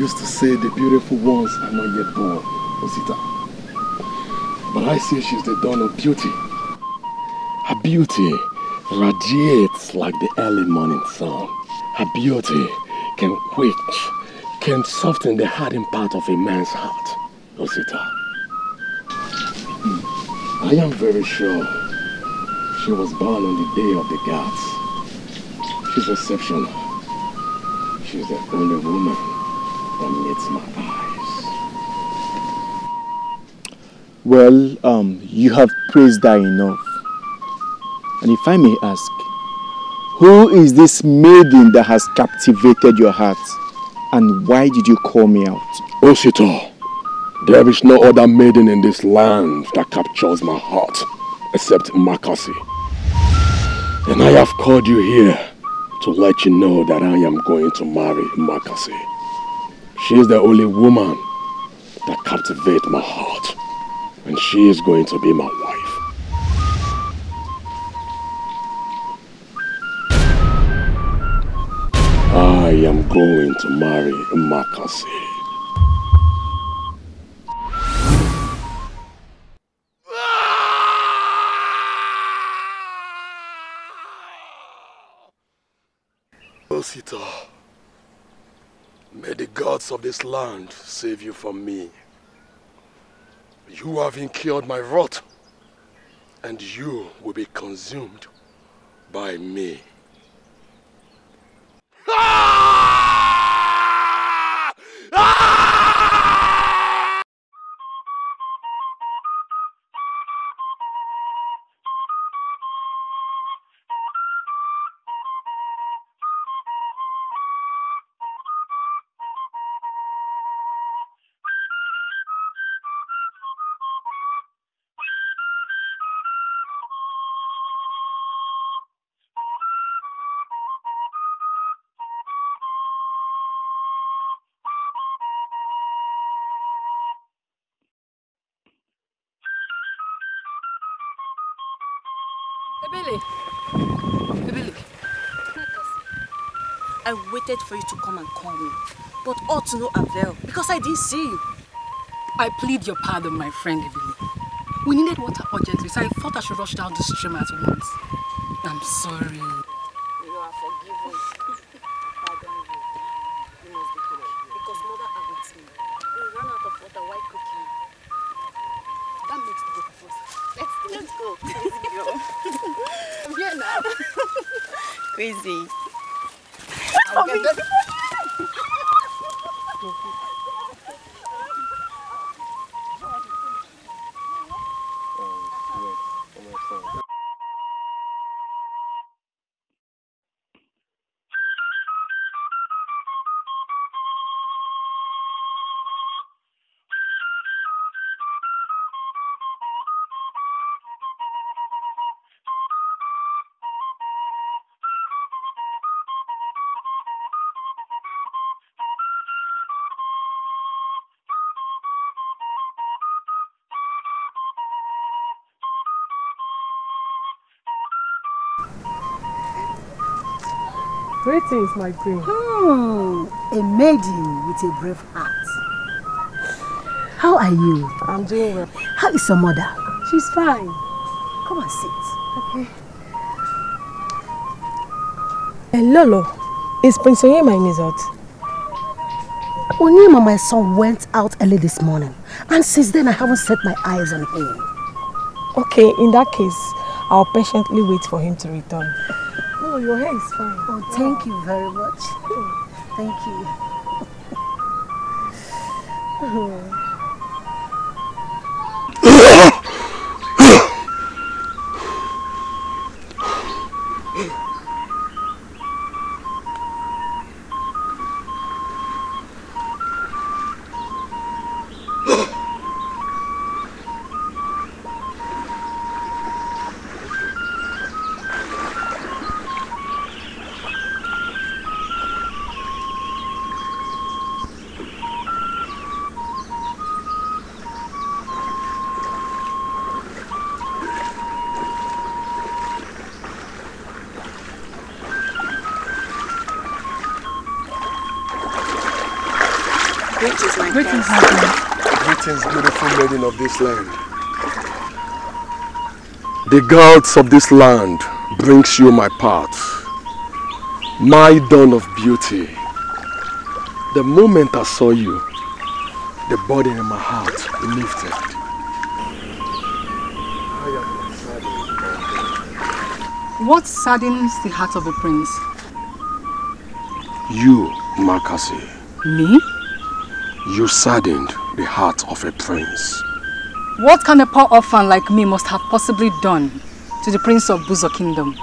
used to say the beautiful ones are not yet born, Osita. But I say she's the dawn of beauty. Her beauty radiates like the early morning sun. Her beauty can quench, can soften the hardened part of a man's heart, Osita. Hmm. I am very sure she was born on the day of the gods. She's exceptional. She's the only woman amidst my eyes. Well, um, you have praised her enough. And if I may ask, who is this maiden that has captivated your heart? And why did you call me out? Osito, there is no other maiden in this land that captures my heart except Makasi. And I have called you here to let you know that I am going to marry Makasi. She is the only woman that captivates my heart. And she is going to be my wife. I am going to marry Makasi. Osita. May the gods of this land save you from me. You have incurred my wrath, and you will be consumed by me. Ah! Ah! waited for you to come and call me, but all to no avail because I didn't see you. I plead your pardon, my friend We needed water urgently, so I thought I should rush down the stream at once. I'm sorry. You are forgiven. pardon you. You must be correct because mother awaits me. We ran out of water while cooking. That makes the both of Let's go. Let's go. Let's go. I'm here now. Crazy. 好的。things my this. Hmm, a maiden with a brave heart. How are you? I'm doing well. How is your mother? She's fine. Come and sit. Okay. Hey, Lolo, is Prince Onyema in his hut? Onyema, my son, went out early this morning. And since then, I haven't set my eyes on him. Okay, in that case, I'll patiently wait for him to return. Oh, your hair is fine. Oh, thank you very much. Oh, thank you. oh. since beautiful maiden of this land. The gods of this land brings you my path, my dawn of beauty. The moment I saw you, the burden in my heart lifted. What saddens the heart of a prince? You, Makasi. Me? You saddened the heart of a prince. What can a poor orphan like me must have possibly done to the prince of Buzo kingdom?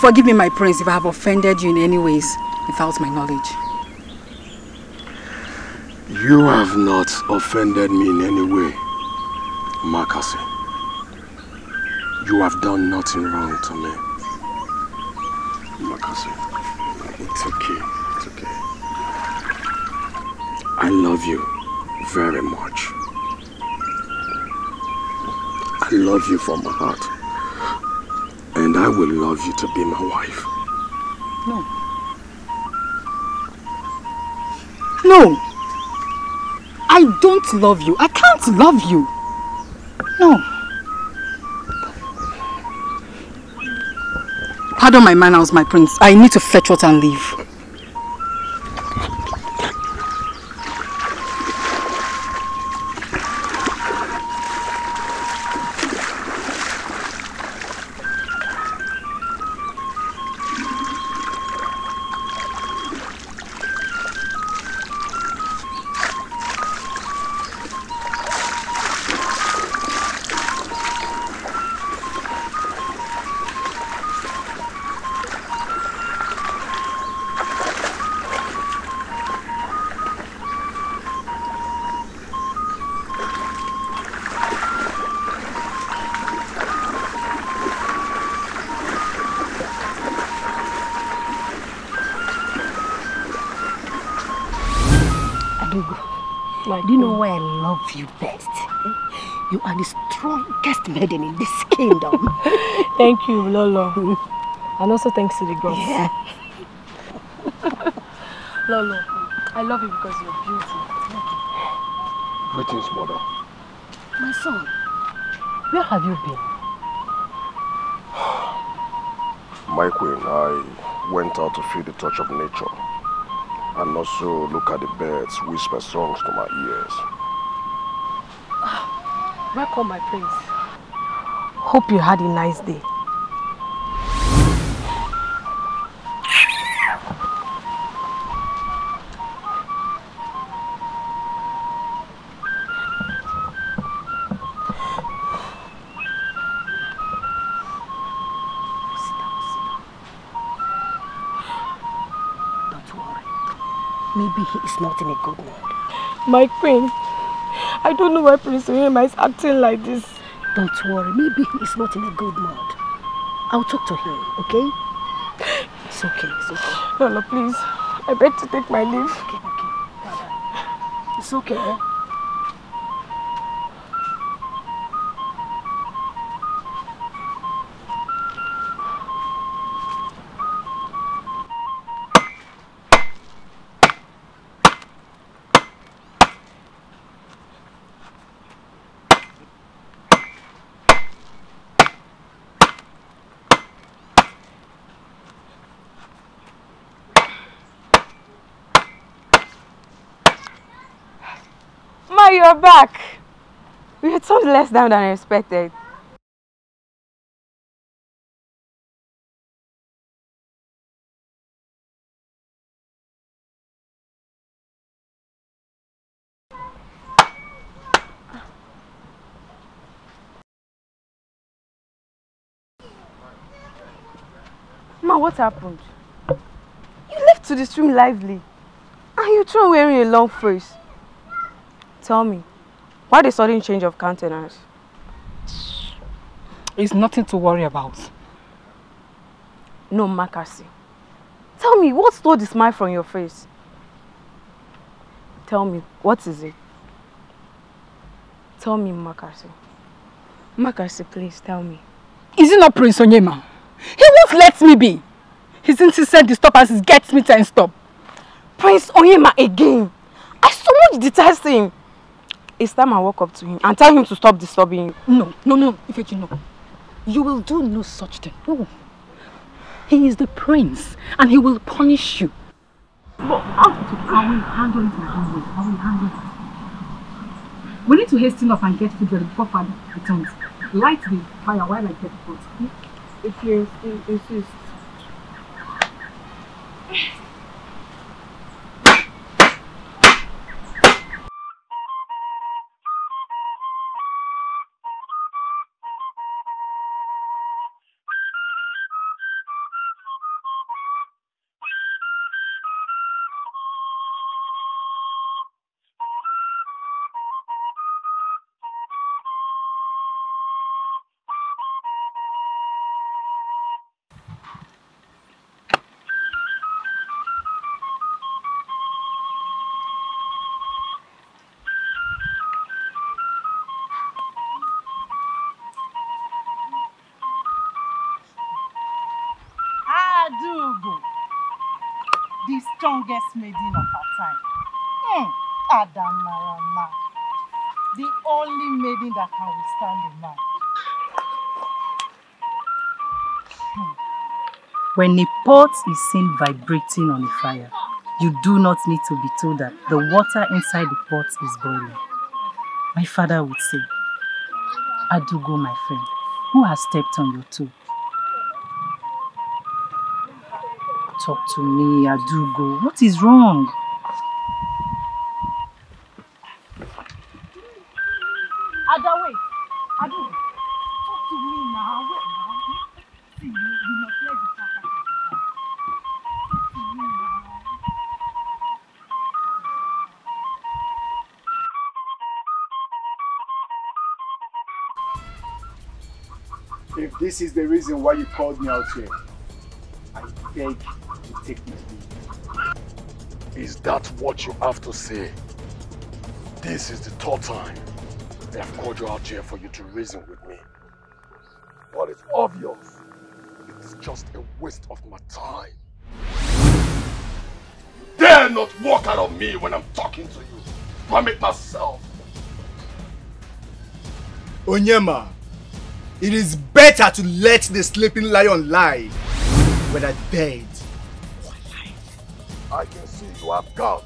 Forgive me, my prince, if I have offended you in any ways without my knowledge. You have not offended me in any way, Makase. You have done nothing wrong to me. Makase, it's okay. I love you very much. I love you from my heart. And I will love you to be my wife. No. No. I don't love you. I can't love you. No. Pardon my manners, my prince. I need to fetch water and leave. My do you know why I love you best? You are the strongest maiden in this kingdom. Thank you, Lolo. and also thanks to the gods. Yeah. Lolo, I love you because you're beautiful. Greetings, mother. My son, where have you been? My queen, I went out to feel the touch of nature. And also look at the birds whisper songs to my ears. Ah, welcome, my prince. Hope you had a nice day. acting a good mood. My queen, I don't know why Prince William is acting like this. Don't worry, maybe he's not in a good mood. I'll talk to him, okay? It's okay, it's okay. no, please, I beg to take my leave. Okay, okay, It's okay, eh? are back. We had told less down than I expected. Ma, what happened? You left to the stream lively. And you throw wearing a long face. Tell me, why the sudden change of countenance? It's nothing to worry about. No, Makasi. Tell me, what stole the smile from your face? Tell me, what is it? Tell me, Makasi. Makasi, please, tell me. Is it not Prince Onyema? He won't let me be. He's insistent to stop as he gets me to stop. Prince Onyema again. I so much detest him. It's time I walk up to him and tell him to stop disturbing you. No, no, no, Ifechi, no. You will do no such thing. No. He is the prince and he will punish you. But how to, I will handle it my own way. I will handle it. We need to hasten up and get food ready before father returns. Light the fire while I get food. If you insist. strongest maiden of her time. Hmm. Adanarama. The only maiden that can withstand a man. Hmm. When a pot is seen vibrating on a fire, you do not need to be told that the water inside the pot is boiling. My father would say, Adugo, my friend, who has stepped on your toe? talk to me, Adugo. What is wrong? Ada, wait. talk to me now. Wait now. See, you, must let the talk Talk to me now. If this is the reason why you called me out here, I beg is that what you have to say? This is the third time they have called you out here for you to reason with me. But it's obvious. It's just a waste of my time. You dare not walk out of me when I'm talking to you. Permit myself. Onyema, it is better to let the sleeping lion lie when I dead I can see you have guts.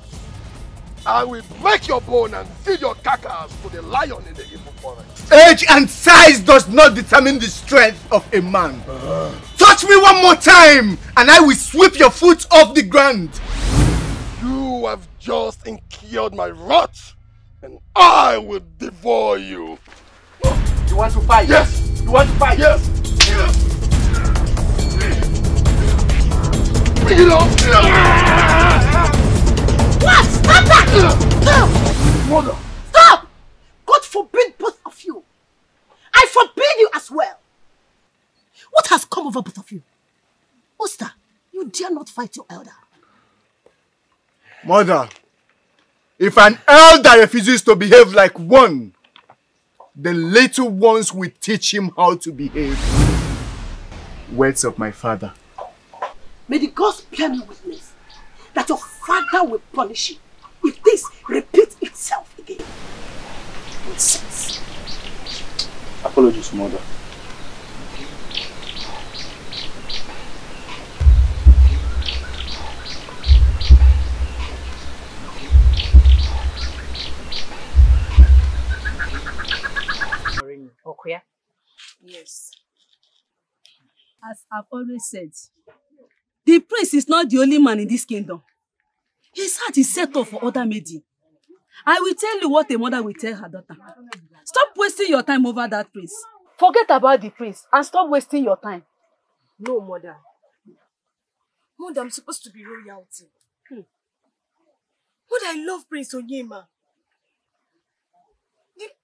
I will break your bone and feed your carcass to the lion in the evil forest. Age and size does not determine the strength of a man. Uh. Touch me one more time and I will sweep your foot off the ground. You have just incurred my wrath and I will devour you. You want to fight? Yes. You want to fight? Yes. yes. you What? Stop that! Mother! Stop! God forbid both of you! I forbid you as well! What has come over both of you? Oster, you dare not fight your elder. Mother, if an elder refuses to behave like one, the little ones will teach him how to behave. Words of my father. May the gods bear me witness that your father will punish you if this repeats itself again. Nonsense. Apologies, mother. Yes. As I've always said, The prince is not the only man in this kingdom. His heart is set up for other maiden. I will tell you what a mother will tell her daughter. Stop wasting your time over that prince. Forget about the prince and stop wasting your time. No, mother. Mother, I'm supposed to be royalty. Hmm. I love Prince Onyema.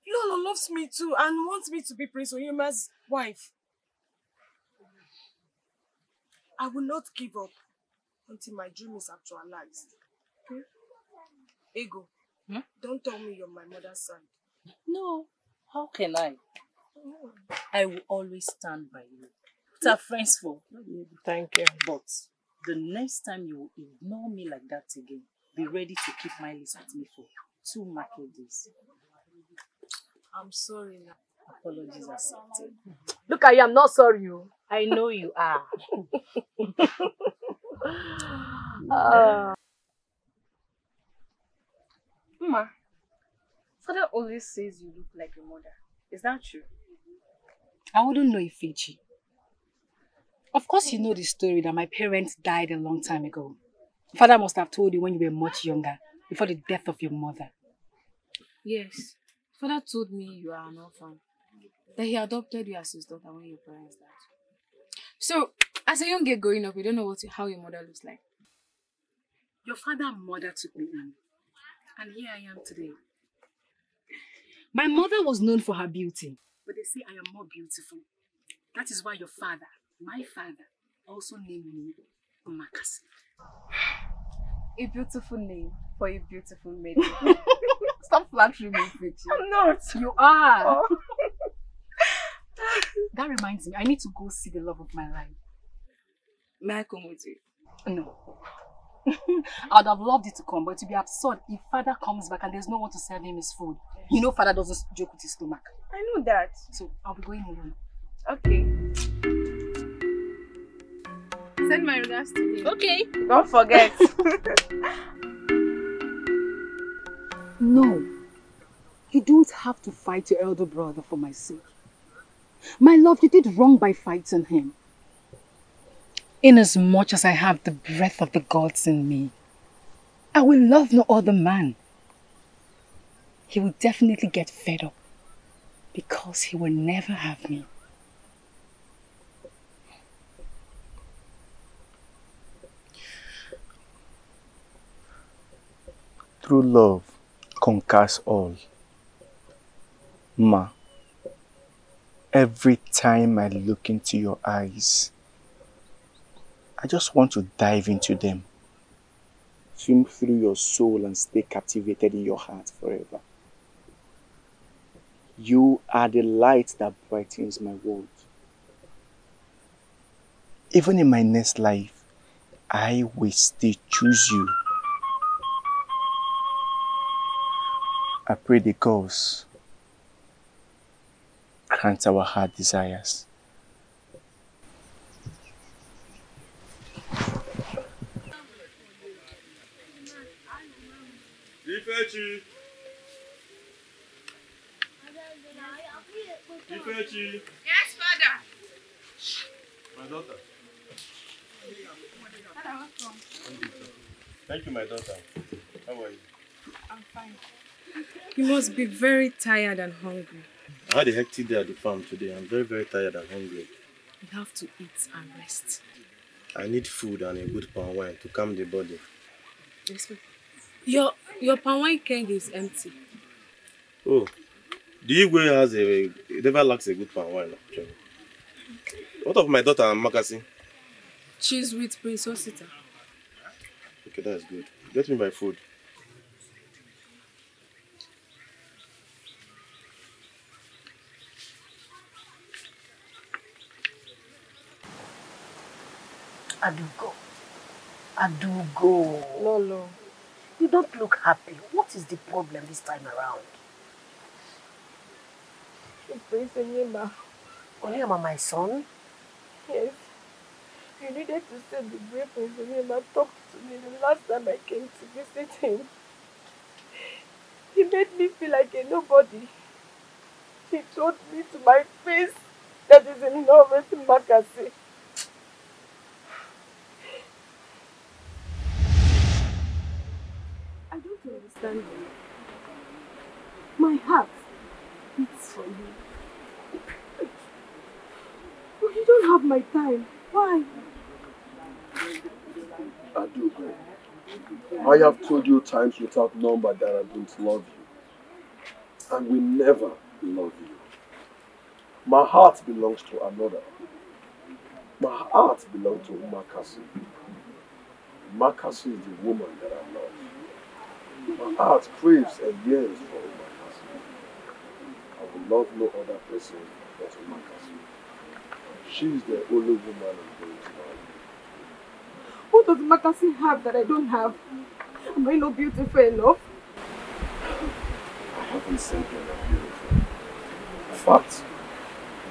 Lolo loves me too and wants me to be Prince Onyema's wife. I will not give up until my dream is actualized. Okay? Hmm? Ego, hmm? don't tell me you're my mother's son. No, how can I? Oh. I will always stand by you. What are friends for? Thank you. But the next time you ignore me like that again, be ready to keep my list with me for two market days. I'm sorry now. Apologies accepted. Look, I am not sorry, you. Oh. I know you are. uh, father always says you look like your mother. Is that true? I wouldn't know if Fiji. Of course you know the story that my parents died a long time ago. Father must have told you when you were much younger, before the death of your mother. Yes. Father told me you are an orphan. That he adopted you as his daughter when your parents died. So, as a young girl growing up, you don't know what how your mother looks like. Your father and mother took me in, and here I am today. My mother was known for her beauty. But they say I am more beautiful. That is why your father, my father, also named me Umakasi. A beautiful name for a beautiful maiden. Stop flattering me, Fitchy. I'm not. You are. Oh. That reminds me, I need to go see the love of my life. May I come with you? No. I would have loved it to come, but it would be absurd if father comes back and there's no one to serve him his food. You know father doesn't joke with his stomach. I know that. So I'll be going alone. Okay. Send my regards to me. Okay. Don't forget. no. You don't have to fight your elder brother for my sake. My love, you did wrong by fighting him. Inasmuch as I have the breath of the gods in me, I will love no other man. He will definitely get fed up because he will never have me. True love conquers all. Ma every time I look into your eyes. I just want to dive into them. Swim through your soul and stay captivated in your heart forever. You are the light that brightens my world. Even in my next life, I will still choose you. I pray the cause grant our heart desires. Yes, Father. My daughter. welcome. Thank you, my daughter. How are you? I'm fine. You must be very tired and hungry. I had a hectic day at the farm today. I'm very, very tired and hungry. You have to eat and rest. I need food and a good palm wine to calm the body. Yes, ma'am. Your, your palm wine keg is empty. Oh, the Igwe has a, it never lacks a good palm wine. Actually. What of my daughter and Makasi? Cheese with Prince Osita. Okay, that's good. Get me my food. Adugo. Adugo. Lolo. You don't look happy. What is the problem this time around? Please, Onyema. Onyema, my son? Yes. You needed to send the brave Prince Onyema talk to me the last time I came to visit him. He made me feel like a nobody. He told me to my face that he's in love with Makasi. My heart beats for you. But you don't have my time. Why? I do. I have told you times without number that I don't love you. And we never love you. My heart belongs to another. My heart belongs to Umakasi. Umakasi is the woman that I love. My heart craves and yearns for my Umakasi. I would love no other person but Umakasi. She is the only woman I'm going to marry. What does Umakasi have that I don't have? Am I not beautiful enough? I haven't said that are not beautiful. In fact,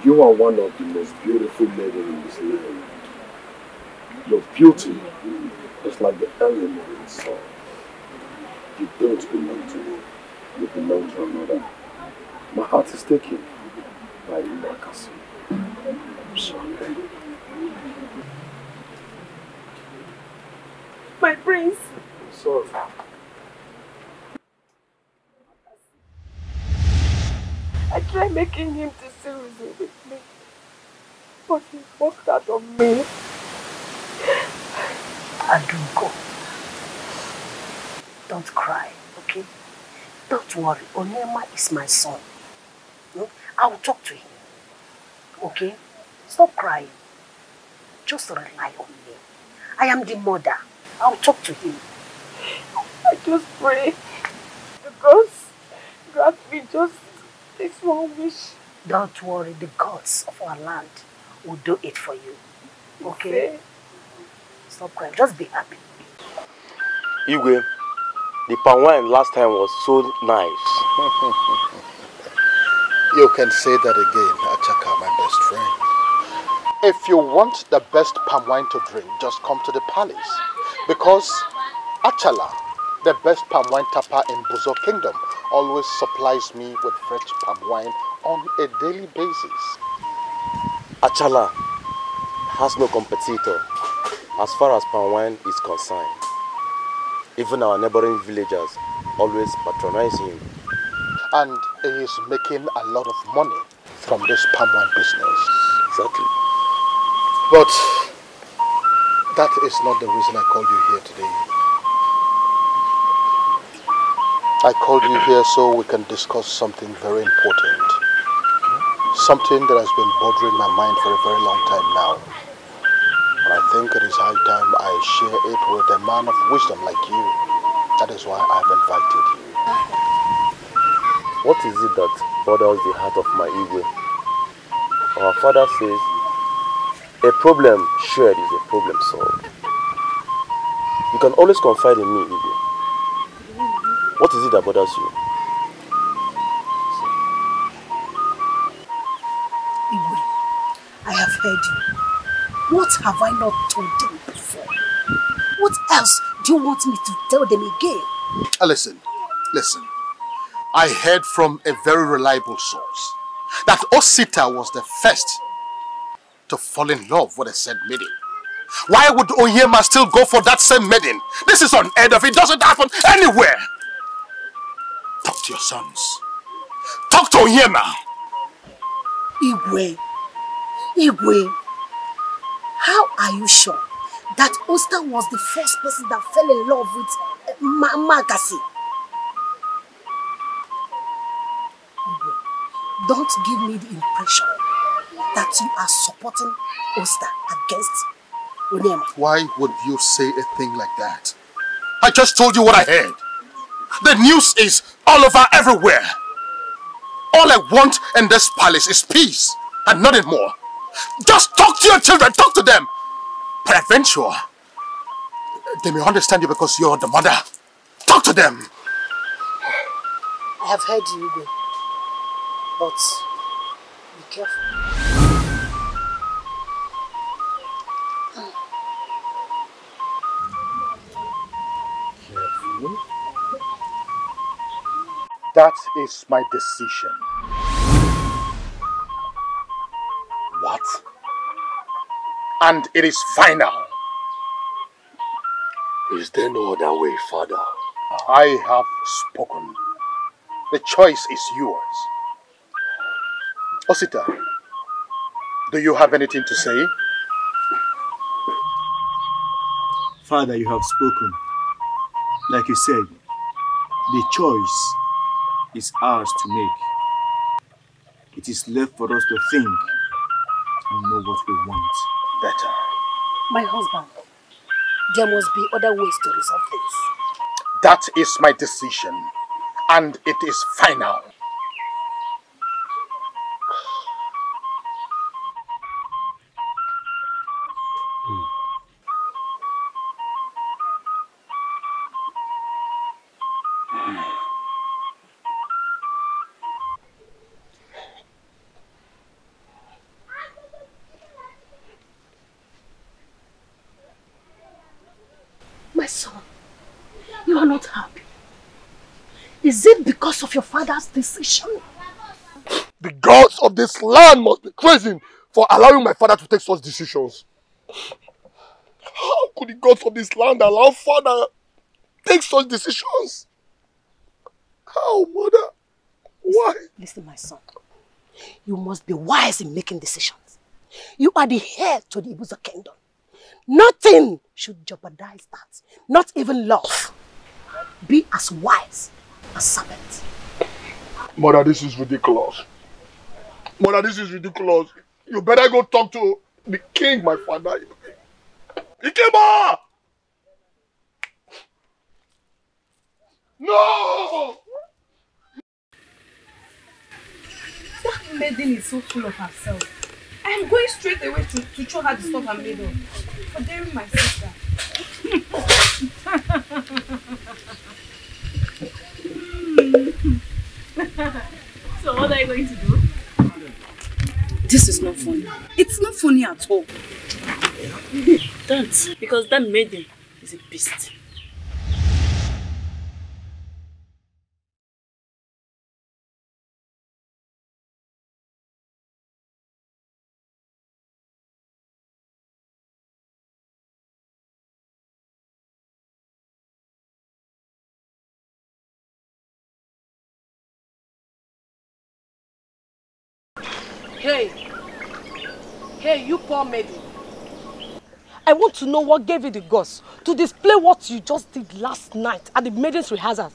you are one of the most beautiful ladies in this land. Your beauty is like the element in the sun. You don't belong to me. You belong to another. My heart is taken by Marcus. I'm sorry. My prince. I'm sorry. I tried making him to see reason with me, but he walked out on me. I do go. Don't cry, okay? Don't worry. Onyema is my son. No? Hmm? I will talk to him. Okay? Stop crying. Just rely on me. I am the mother. I will talk to him. I just pray the gods grant me just this one wish. Don't worry. The gods of our land will do it for you. Okay? okay. Stop crying. Just be happy. Igwe. The palm wine last time was so nice. you can say that again, Achaka, my best friend. If you want the best palm wine to drink, just come to the palace. Because Achala, the best palm wine tapper in Buzo Kingdom, always supplies me with fresh palm wine on a daily basis. Achala has no competitor as far as palm wine is concerned. Even our neighboring villagers always patronize him. And he is making a lot of money from this palm wine business. Exactly. But that is not the reason I called you here today. I called you here so we can discuss something very important. Something that has been bothering my mind for a very long time now think it is high time I share it with a man of wisdom like you. That is why I've invited you. What is it that bothers the heart of my ego? Our father says, a problem shared is a problem solved. You can always confide in me, Igwe. What is it that bothers you? Igwe, I have heard you. What have I not told them before? What else do you want me to tell them again? Uh, listen, listen. I heard from a very reliable source that Osita was the first to fall in love with a said maiden. Why would Oyema still go for that same maiden? This is unheard of. It doesn't happen anywhere. Talk to your sons. Talk to Oyema. Igwe. Igwe. How are you sure that Oster was the first person that fell in love with uh, Ma Magasi? Don't give me the impression that you are supporting Oster against Onyema. Why would you say a thing like that? I just told you what I heard. The news is all over everywhere. All I want in this palace is peace and nothing more. Just talk to your children, talk to them. Peradventure, they may understand you because you're the mother. Talk to them. I have heard you, Igwe. But be careful. Careful? That is my decision. What? And it is final. Is there no other way, Father? I have spoken. The choice is yours. Osita, do you have anything to say? Father, you have spoken. Like you said, the choice is ours to make. It is left for us to think we know what we want better. My husband, there must be other ways to resolve this. That is my decision, and it is final. father's decision. The gods of this land must be crazy for allowing my father to take such decisions. How could the gods of this land allow father take such decisions? How, mother? Why? Listen, listen, my son. You must be wise in making decisions. You are the heir to the Ibuza kingdom. Nothing should jeopardize that. Not even love. Be as wise as serpent. Mother, this is ridiculous. Mother, this is ridiculous. You better go talk to the king, my father. Ikeba! No! That maiden is so full of herself. I am going straight away to, to show her the stuff I'm made of. For daring my sister. mm. so what are you going to do? This is not funny. It's not funny at all. Don't, because that maiden is a beast. God made I want to know what gave you the guts to display what you just did last night at the maiden's rehearsal.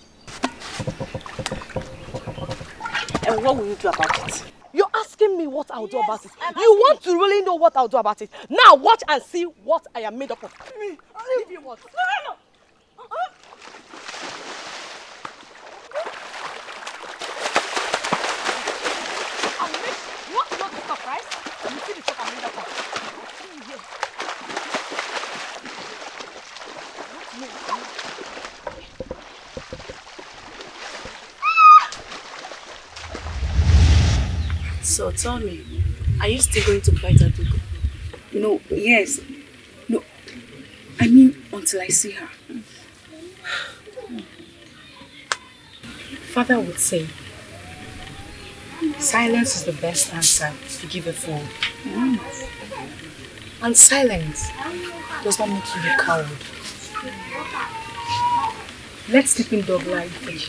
And what will you do about it? You're asking me what I'll yes, do about it. I'm you want to really know what I'll do about it. Now watch and see what I am made up of. me. Leave you what? No, no, no. So tell me, are you still going to fight Adugo? No, yes. No, I mean until I see her. Father would say, silence is the best answer to give a fool. Mm. And silence does not make you a coward. Let us keep dog doglike free.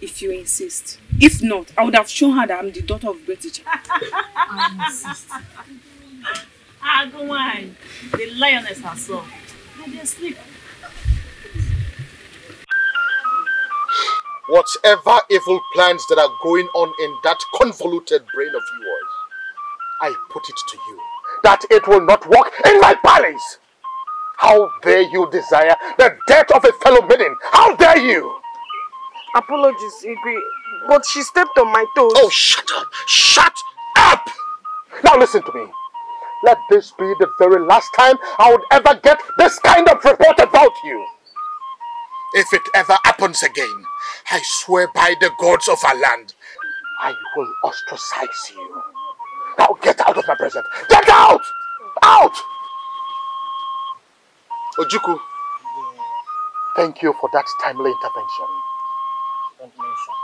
If you insist. If not, I would have shown her that I'm the daughter of British. I insist. Ah, go on. The lioness herself. Let them sleep. Whatever evil plans that are going on in that convoluted brain of yours, I put it to you that it will not walk in my palace. How dare you desire the death of a fellow maiden? How dare you? Apologies, Igwe, but she stepped on my toes. Oh, shut up! Shut up! Now listen to me. Let this be the very last time I would ever get this kind of report about you. If it ever happens again, I swear by the gods of our land, I will ostracize you. Now get out of my presence. Get out! Out! Ojuku, thank you for that timely intervention. Don't mention.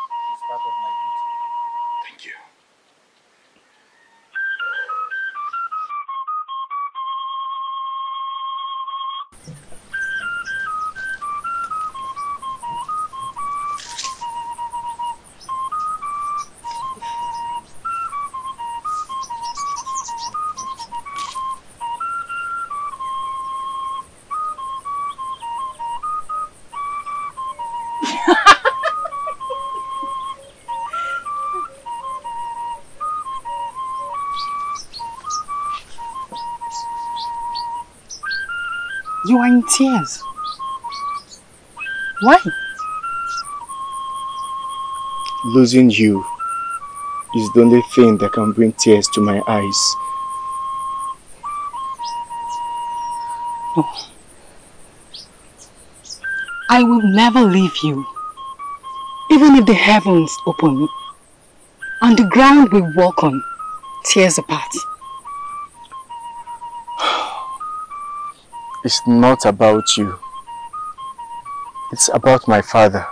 you are in tears? Why? Losing you is the only thing that can bring tears to my eyes. No. Oh. I will never leave you. Even if the heavens open and the ground we walk on tears apart. It's not about you. It's about my father.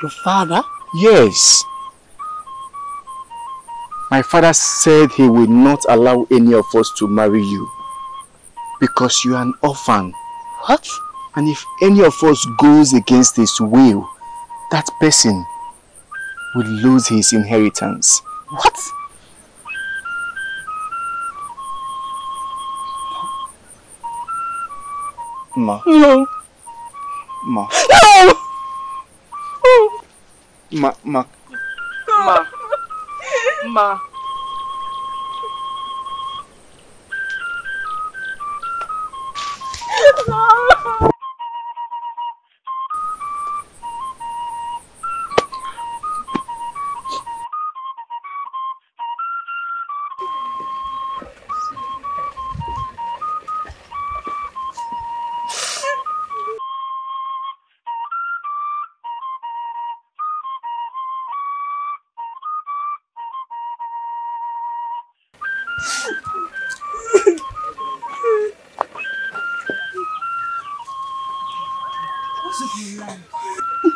Your father? Yes. My father said he will not allow any of us to marry you because you are an orphan. What? And if any of us goes against his will, that person will lose his inheritance. What? Ma. No. Ma. No! Ma, ma. Ma. Ma.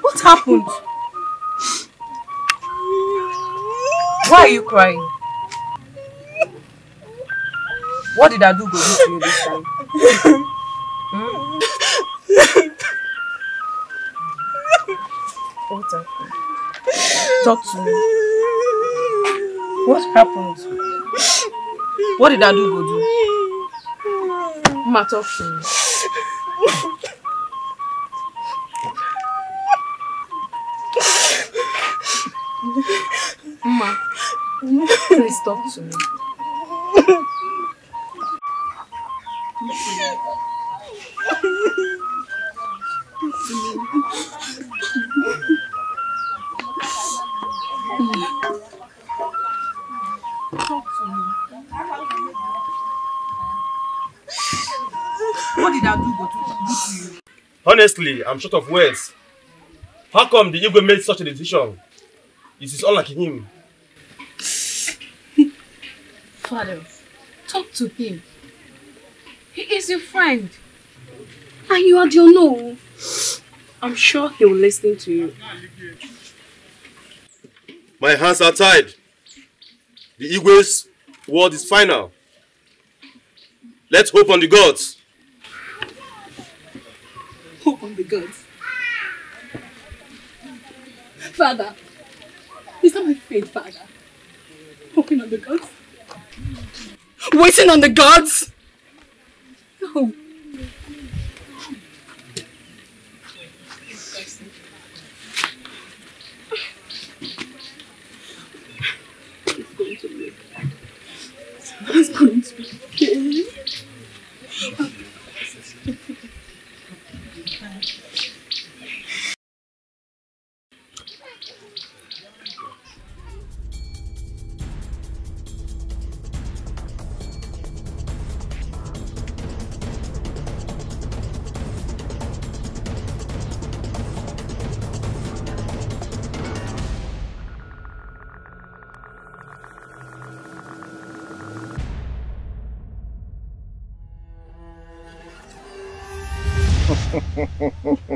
What happened? Why are you crying? What did I do to you this time? Hmm? What happened? Talk to me. What happened? What did I do, Godu? Ma, me. Ma, please talk to me. Honestly, I'm short of words. How come the Igwe made such a decision? It is unlike him. Father, talk to him. He is your friend. And you are your no. I'm sure he will listen to you. My hands are tied. The Igwe's word is final. Let's hope on the gods among the gods. Father, is that my faith, Father? Hoping on the gods? Waiting on the gods? No. It's going to be okay. It's going to be okay.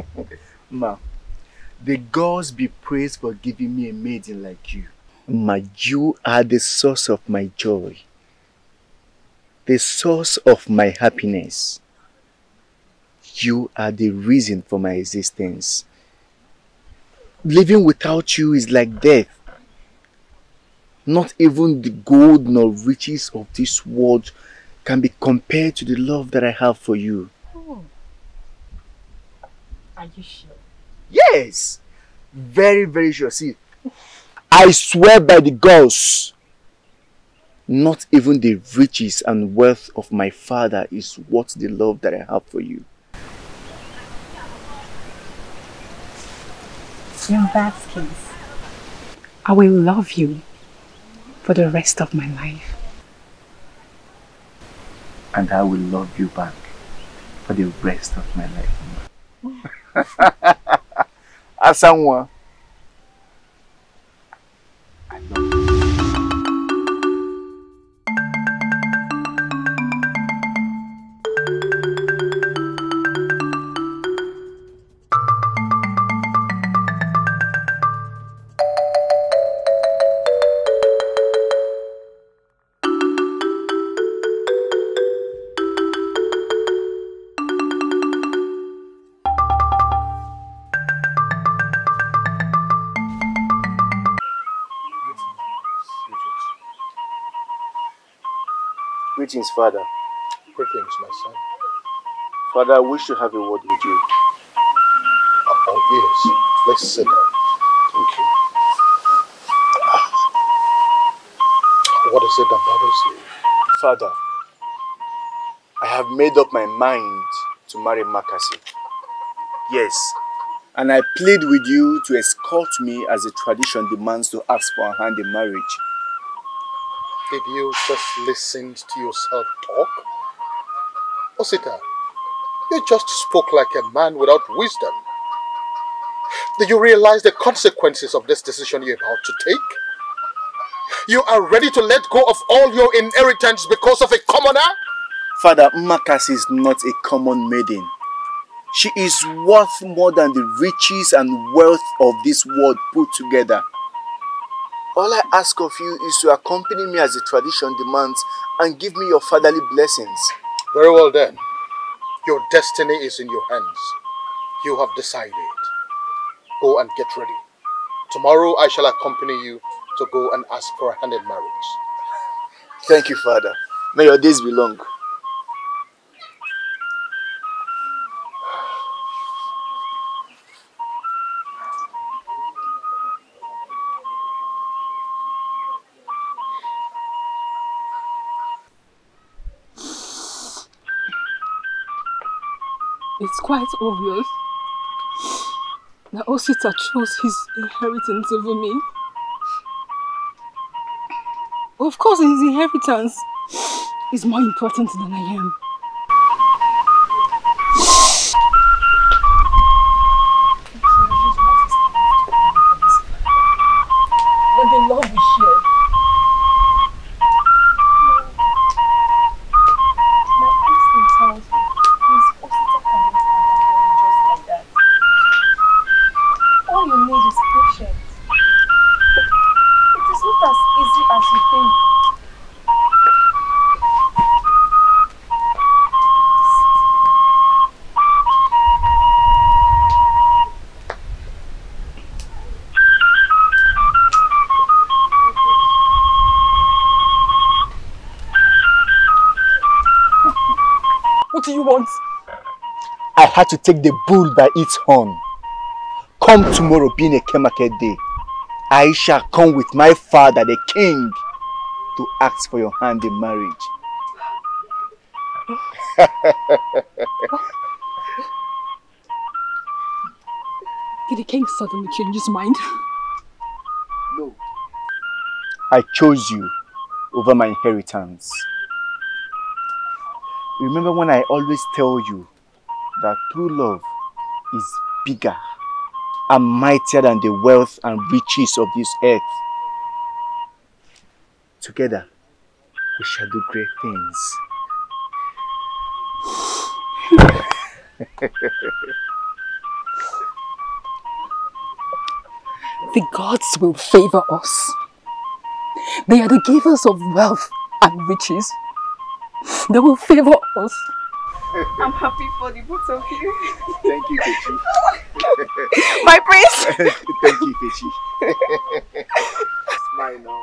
Ma, the gods be praised for giving me a maiden like you. Ma, you are the source of my joy. The source of my happiness. You are the reason for my existence. Living without you is like death. Not even the gold nor riches of this world can be compared to the love that I have for you. Are you sure? Yes. Very, very sure. See, I swear by the gods, not even the riches and wealth of my father is worth the love that I have for you. In that case, I will love you for the rest of my life. And I will love you back for the rest of my life. Ação é uma. things, Father. Three things, my son. Father, I wish to have a word with you. Oh, yes. Let's sit down. Thank you. Ah. What is it that bothers you? Father, I have made up my mind to marry Makasi. Yes, and I plead with you to escort me as the tradition demands to ask for a hand in marriage if you just listened to yourself talk? Osita, oh, you just spoke like a man without wisdom. Do you realize the consequences of this decision you're about to take? You are ready to let go of all your inheritance because of a commoner? Father, Makas is not a common maiden. She is worth more than the riches and wealth of this world put together. All I ask of you is to accompany me as the tradition demands and give me your fatherly blessings. Very well then. Your destiny is in your hands. You have decided. Go and get ready. Tomorrow I shall accompany you to go and ask for a hand in marriage. Thank you, Father. May your days be long. quite obvious that Osita chose his inheritance over me. Of course, his inheritance is more important than I am. had to take the bull by its horn. Come tomorrow being a Kemaket day, I shall come with my father, the king, to ask for your hand in marriage. Did the king suddenly change his mind? No. I chose you over my inheritance. Remember when I always tell you that true love is bigger and mightier than the wealth and riches of this earth. Together, we shall do great things. the gods will favor us. They are the givers of wealth and riches. They will favor us I'm happy for the both of you. Thank you, Pechi. My prince! Thank you, Pechi. Smile now.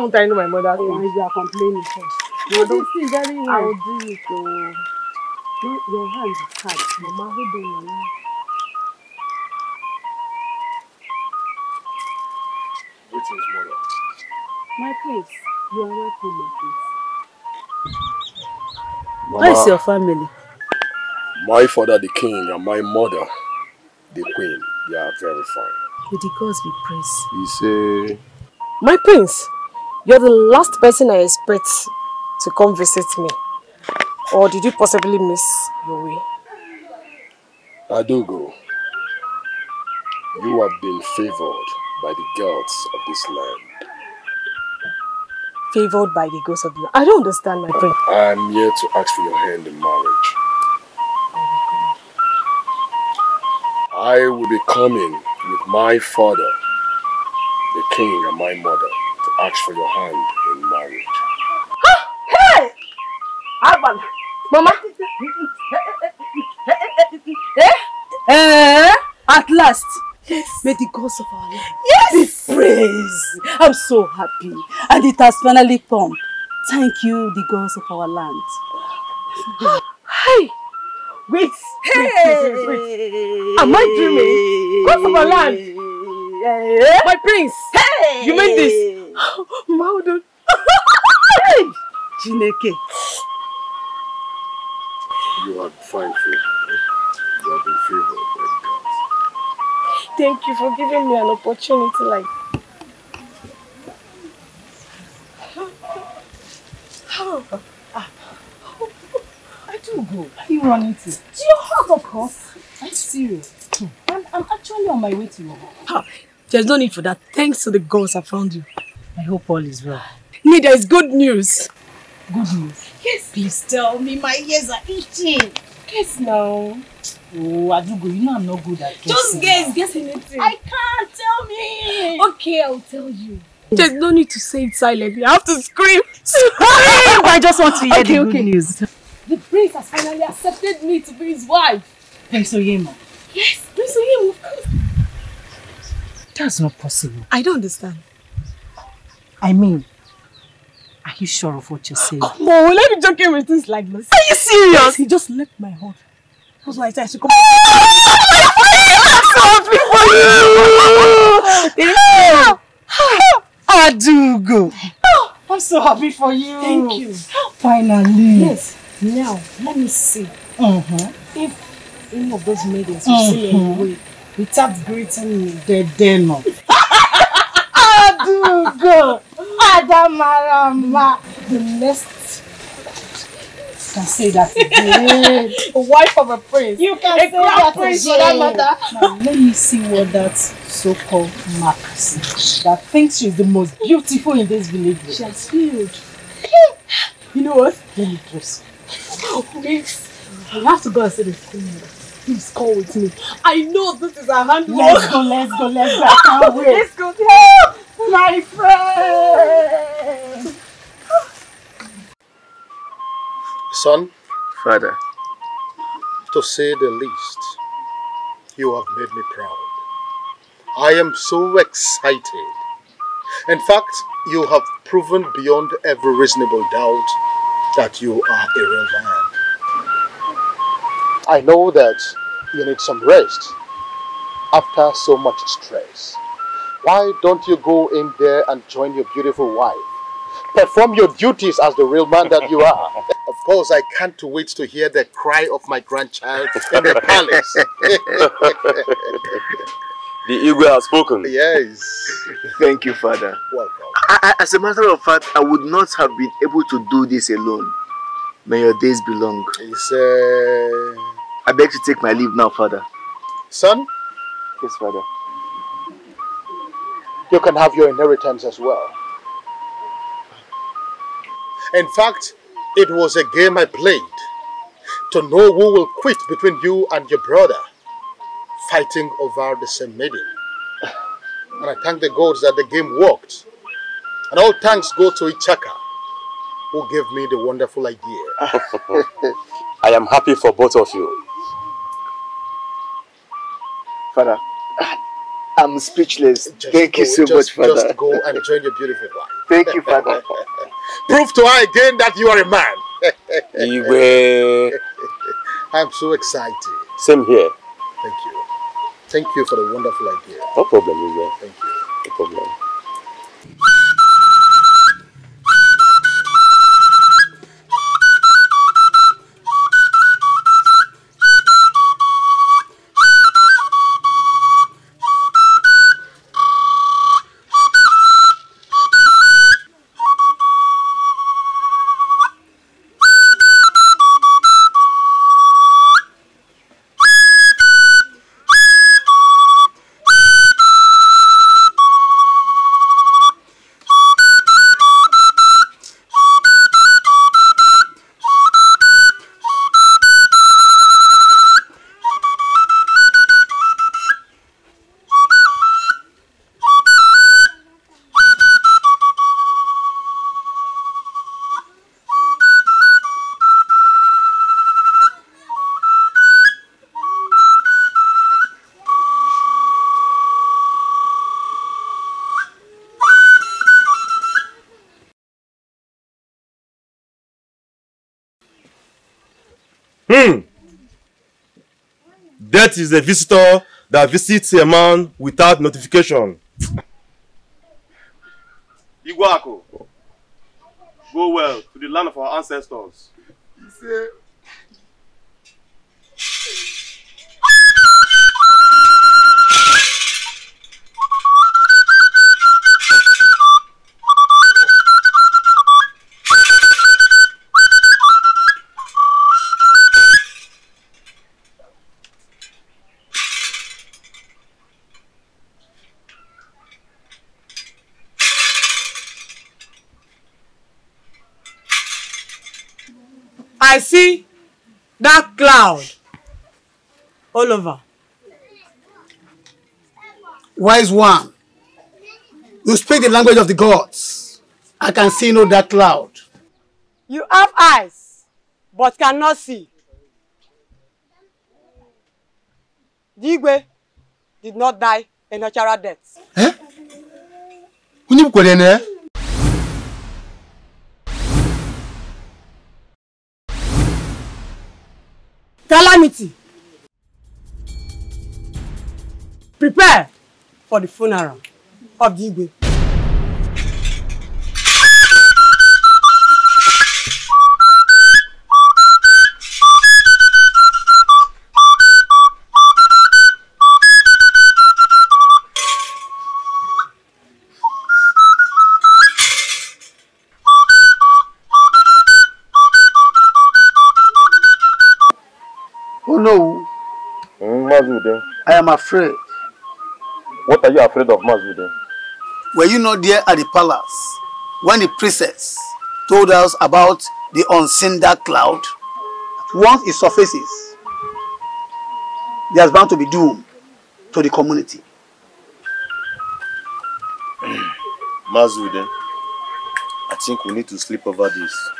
won't I know my mother? Oh. Why you are complaining first? You did see very well. I will do it. Oh. No, your hand is hard. Mama, hold on, Mama. Greetings, mother. My place. You are welcome, my place. Mama, How is your family? My father, the king, and my mother, the queen, they are very fine. May the gods be praised. He say... My prince, you're the last person I expect to come visit me. Or did you possibly miss your way? Adogo, you have been favored by the gods of this land. Favored by the gods of the land? I don't understand, my friend. I'm here to ask for your hand in marriage. I will be coming with my father, the king and my mother ask for your hand in marriage. hey! Alban! Mama! eh? Eh? At last! Yes. May the gods of our Lord yes. be praised. I'm so happy. And it has finally come. Thank you, the gods of our land. Hi! hey. Wait! Hey! Wait, wait, wait, wait. Am I dreaming? Gods of our land! Yeah. My prince! Hey! You made this! Maudu! hey! Jineke. You are fine favor. You have been favored by God. Thank you for giving me an opportunity like Oh, I do go. Are you running to? To you hug? of course. I'm serious? Hmm. I'm, I'm actually on my way to your there's no need for that. Thanks to the gods I found you. I hope all is well. Nida, it's good news. Good news? Yes. Please tell me. My ears are itching. Guess now. Oh, Adugo, you know I'm not good at guessing. Just guess. Guess anything. I can't. Tell me. Okay, I'll tell you. There's no need to say it silently. I have to scream. Scream! I just want to hear okay, the okay. good news. The prince has finally accepted me to be his wife. Prince Oyema. Yes, Prince Oyema, of course. That's not possible. I don't understand. I mean, are you sure of what you're saying? Come on, let me joking with things like this. Are you serious? He just left my heart. That's why I said I should come back. I'm so happy for you! Adugo! I'm so happy for you! Thank you. Finally. Yes. Now, let me see. Uh -huh. If any of those maidens will still -huh. see me without greeting me. Dedeno. Adugo. Adamarama. The next can say that again. Wife of a prince. You can a say that prince for that matter. Now let me see what that so-called Mark That thinks she's the most beautiful in this village. She has failed. you know what? Let me dress. Please. I have to go and see the school please call with me. I know this is a handwork. Let's go, let's go, let's go. I can't wait. Let's go. Help! My friend! Son. Father. To say the least, you have made me proud. I am so excited. In fact, you have proven beyond every reasonable doubt that you are a real man. I know that you need some rest after so much stress. Why don't you go in there and join your beautiful wife? Perform your duties as the real man that you are. of course, I can't wait to hear the cry of my grandchild in the palace. the eagle has spoken. Yes. Thank you, Father. Welcome. I, I, as a matter of fact, I would not have been able to do this alone. May your days be long. It's, uh... I beg to take my leave now, Father. Son? Yes, Father. You can have your inheritance as well. In fact, it was a game I played to know who will quit between you and your brother fighting over the same maiden. And I thank the gods that the game worked. And all thanks go to Ichaka, who gave me the wonderful idea. I am happy for both of you. Father, I'm speechless. Just Thank go, you so just, much, Father. Just go and join your beautiful wife. Thank you, Father. Prove to her again that you are a man. I'm so excited. Same here. Thank you. Thank you for the wonderful idea. No problem, Iwe. Thank you. No problem. Death is a visitor that visits a man without notification. Iguaco, go well to the land of our ancestors. all Wise one, you speak the language of the gods. I can see no dark cloud. You have eyes, but cannot see. Digwe did not die a natural death. Eh? Unibukwe dene? Eh? Calamity. Prepare for the funeral of the Igwe. Oh no. Mm, I am afraid What are you afraid of, Masvide? Were you not there at the palace when the princess told us about the unseen dark cloud? Once it surfaces, there's bound to be doom to the community. Masvide, I think we need to sleep over this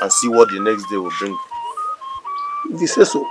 and see what the next day will bring. If you say so,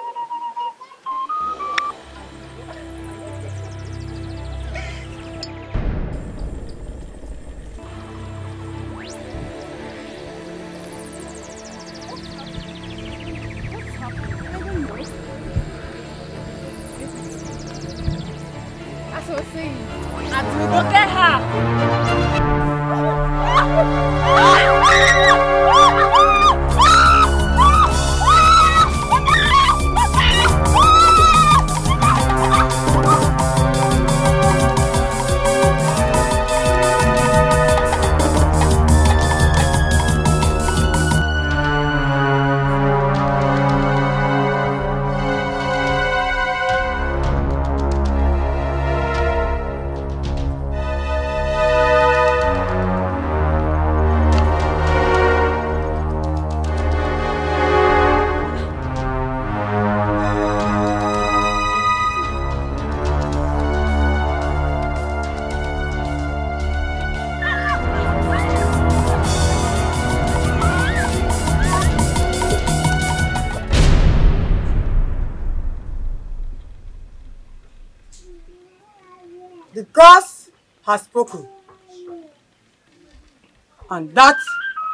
That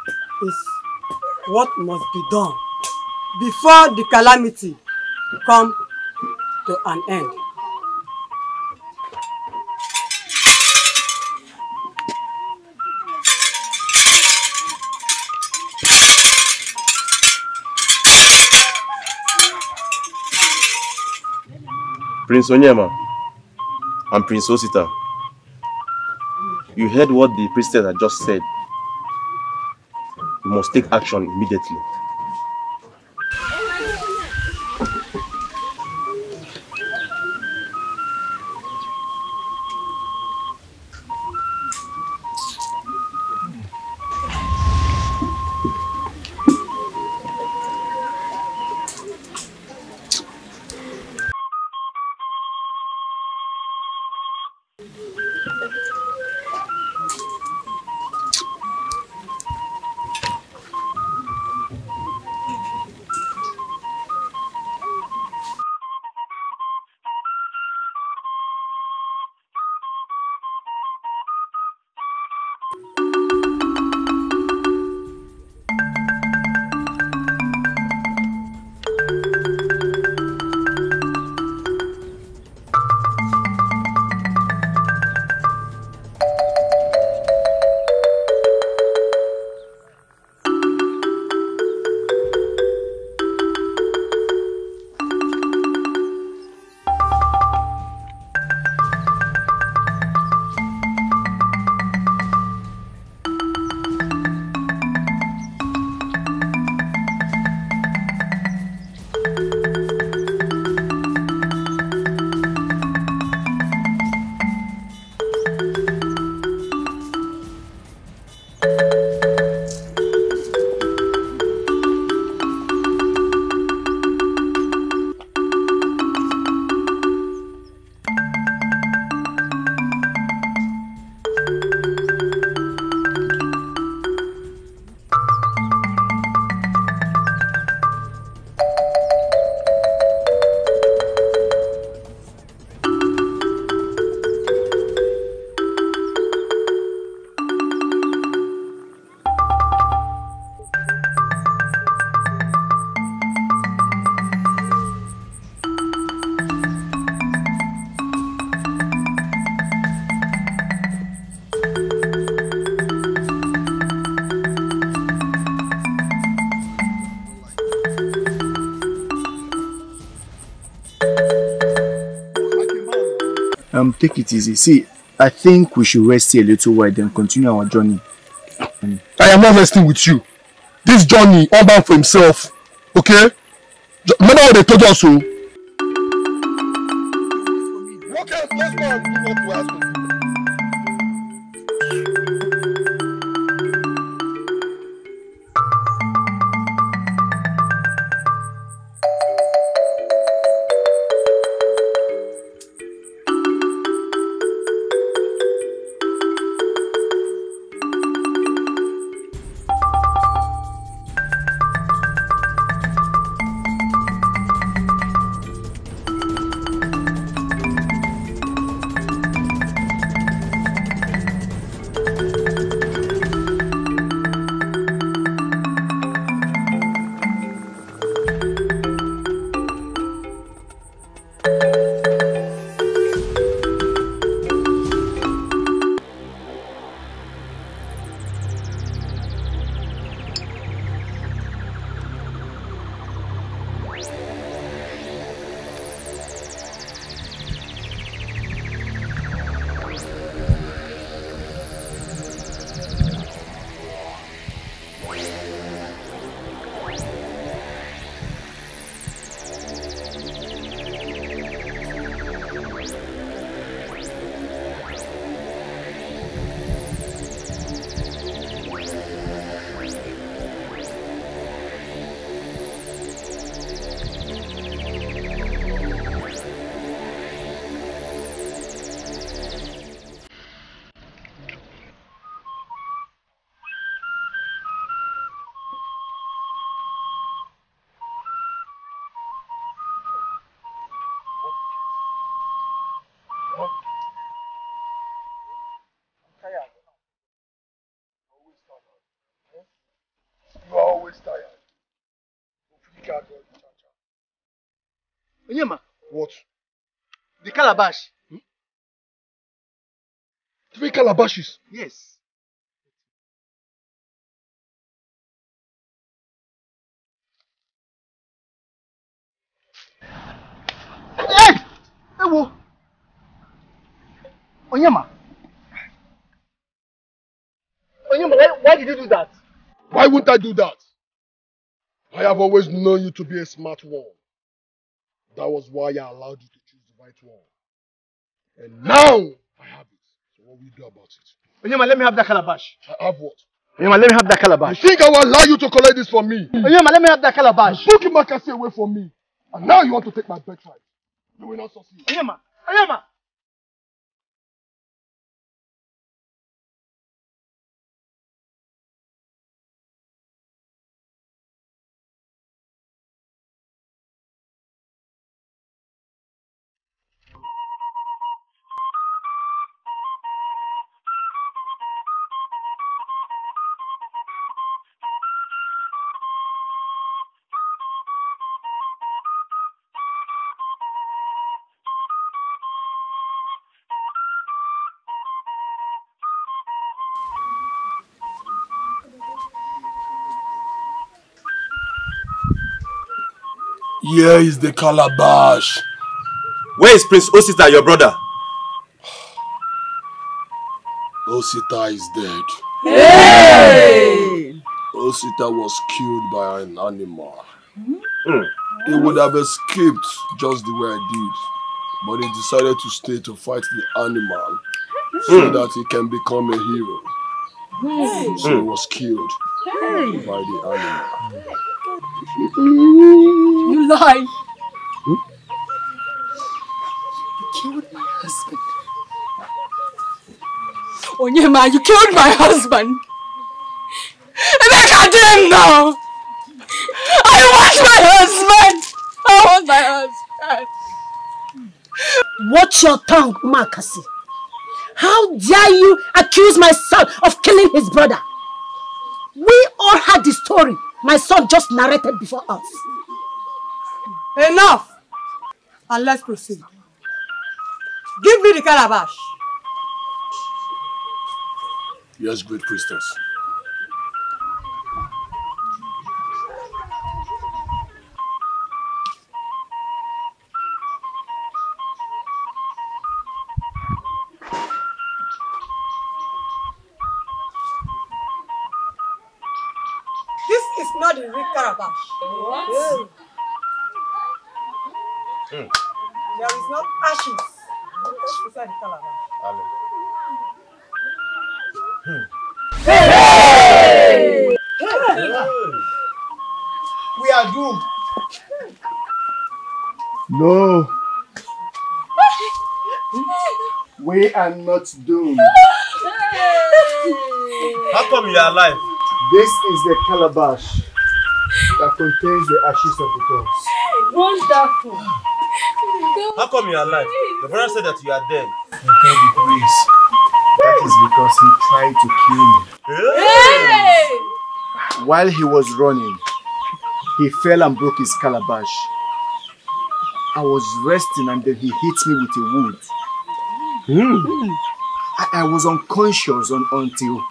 is what must be done before the calamity come to an end. Prince Onyema and Prince Osita, you heard what the priestess had just said must take action immediately. take it easy. See, I think we should rest here a little while, then continue our journey. I am not resting with you. This journey, all bound for himself. Okay? Remember what they told us, so. Oh? calabash. Hmm? Three calabashes? Yes. Hey! Ewo! Onyema! Onyema, why, why did you do that? Why wouldn't I do that? I have always known you to be a smart one. That was why I allowed you to choose the right one. And now I have it. So what will you do about it? Onyema, let me have that calabash. I have what? Onyema, let me have that calabash. You think I will allow you to collect this for me? Onyema, let me have that calabash. Book him away from me. And now you want to take my birthright. You will not succeed. Onyema, Onyema. Here is the calabash. Where is Prince Osita, your brother? Osita is dead. Hey! Osita was killed by an animal. Mm. He would have escaped just the way I did. But he decided to stay to fight the animal so hmm. that he can become a hero. Hey. So he was killed hey. by the animal. You lie. Hmm? You killed my husband. Onyema, you killed my husband. And I got him now. I want my husband. I want my husband. Watch your tongue, Umakasi. How dare you accuse my son of killing his brother? We all had the story my son just narrated before us. Enough! And let's proceed. Give me the calabash. Yes, great priestess. Hey! Hmm. We are doomed. No. We are not doomed. How come you are alive? This is the calabash that contains the ashes of the gods. Wonderful. How come you are alive? The brother said that you are dead. the police. That is because he tried to kill me. Hey! While he was running, he fell and broke his calabash. I was resting and then he hit me with a wood. Mm. I, I was unconscious on, until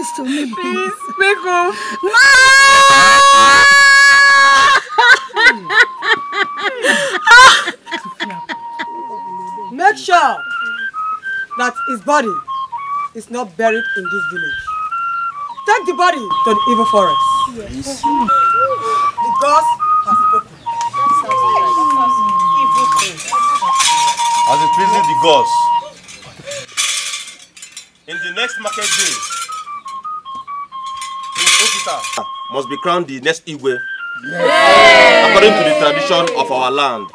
this to me. Please, make home. Make sure that his body is not buried in this village. Take the body to the evil forest. Yes. The gods have spoken. As it pleases the gods. must be crowned the next Igwe. Yes. According to the tradition of our land.